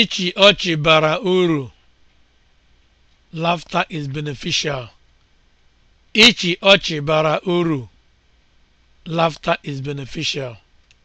Ịchị ọchị bara uru. lafta is beneficial. is beneficial.